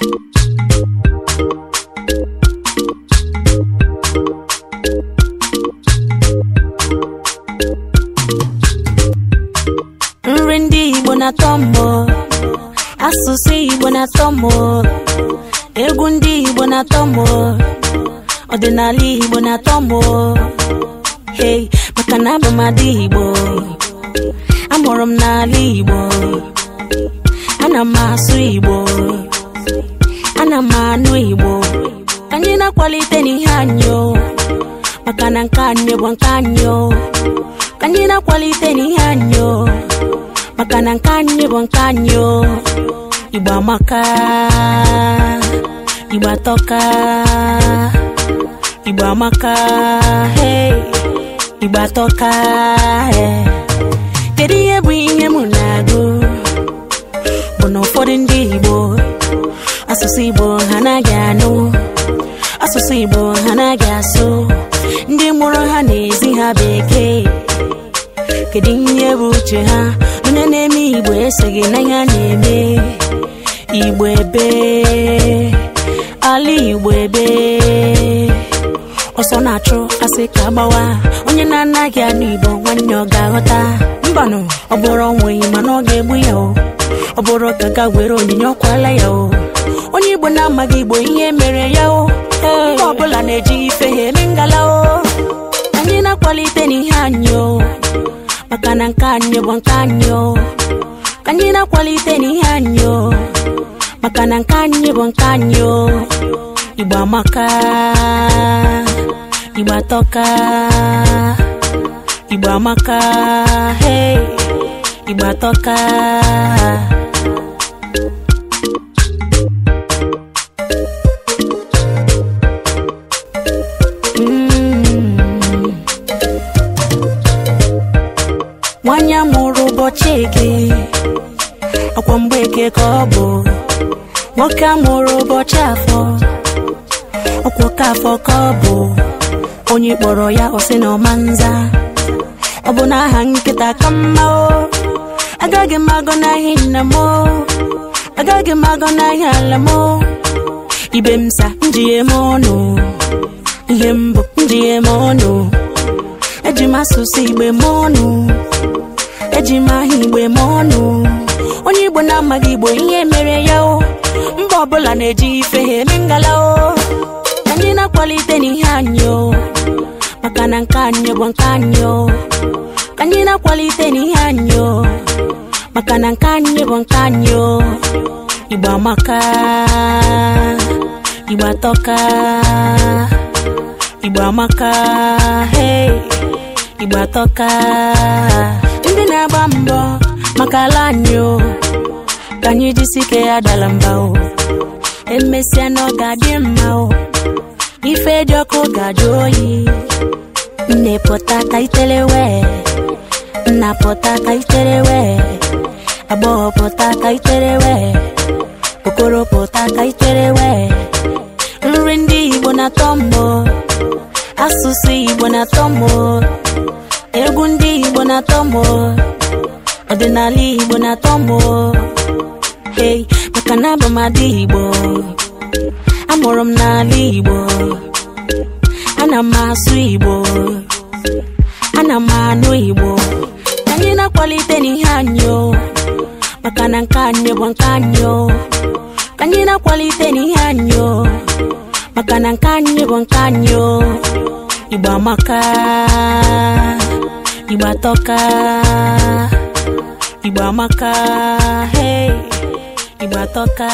nri ndị Igbo na-atọ asụsụ Igbo na-atọ mbọ egwu ndị Igbo na-atọ ọdịnala Igbo na-atọ mbọ hey maka na abụ adị Igbo amụrụ m n'ala Igbo ana m asụ Igbo na-akwalite n'ihe anyị maka na nke anyị bụ nke anyị anyị na-akwalite n'ihe anyị maka na nke anyị bụ nke anyị Igbo amaka Igbo atọka Igbo amaka Igbo atọka asụ igbo ha anaghị asụ ndị mụrụ ha na-ezi ha bekee kedu ihe bụ uche ha onye na-eme igbo eseghị n'anya na-eme igbo ebe ala igbo ebe ọsọ na-achụ asị ka gbawa onye na-anaghị anụ igbo nwanne ọ ga-aghọta mbanụ ọ bụrụ onweghị mana ọ ga-egbu ya o ọ bụrụ ka ga were onyinye ọkwala ya o onye igbo na-amaghị igbo ihe mere ya o nke ọbụla na-eji ife ha eme ngala o anyị na-akwalite n'ihe anyị o maka na nke anyị bụ nke anyị o ka anyị na-akwalite n'ihe anyị o maka na nke anyị bụ nke anyị o Igbo amaka Igbo atọka Igbo amaka hey Igbo atọka ọkwọ ọkwa mgbeke ka ọ bụ nwoke a mụrụ ụbọchị afọ ọkwa ka afọ ka ọ bụ onye kpọrọ ya ọsị na ọma ọ bụ na aha nkịta ka mma o agaghị m n'ahịa nna m agaghị m n'ahịa ala m ibe m sa njighe m ọnụ ihe mbụ m ọnụ eji m asụsụ igbe m ọnụ eji m aha igbe ma ọnụ onye igbo na-amaghị igbo ihe mere ya o mba ọbụla na-eji ife ha eme ngala o anyị na-akwalite n'ihe anyị o maka na nke anyị bụ nke anyị o ka anyị na-akwalite n'ihe anyị o maka na nke anyị bụ nke anyị o igbo amaka igbo atọka igbo amaka igbo atọka ọkala anyị o ka anyị ya mba o emesịa na mma o ife dị ọkụ ga oyi nne pụta itere wee nna pụta ka itere wee agbọghọ okoro nri ndị Igbo na-atọ asụsụ Igbo na-atọ egwu ndị Igbo na-atọ mbọ ọdịnala igbo na-atọ mbụ. hey maka na abụ m adị igbo amụrụ m n'ala igbo ana m asụ igbo ana m anụ igbo anyị na-akwalite n'ihe anyị maka na nke anyị bụ nke anyị anyị na-akwalite n'ihe anyị maka na nke anyị bụ nke anyị igbo amaka igbo atọka igbo maka hey igbo atọka